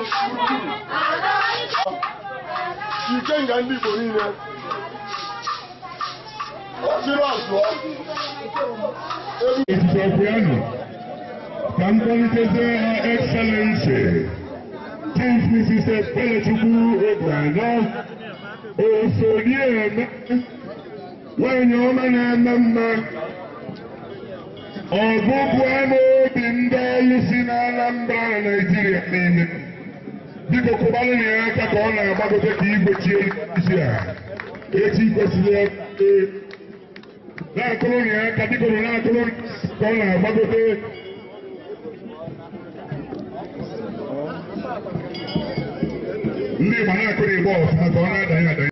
ike nga ndị Igbo niile osiri ọzụọ ebisokwenu ka mkpọliteze ha excellensi Chief Mrs. Ebelechukwu Obianọ osonieme nwanyị ọma na-ama mma ọbụbụ ama obi ndị ọlụ si n'Anambra na Naịjirịa niile biko kubalini aka ka ọ na-agbagote ka igbochie isi a echi kwesịrị na-akụrụni aka biko na-akụrụ ka ọ na-agbagote ndị Igbo na-akụrụ igbo ọfụma ka ọ na-adanye adanye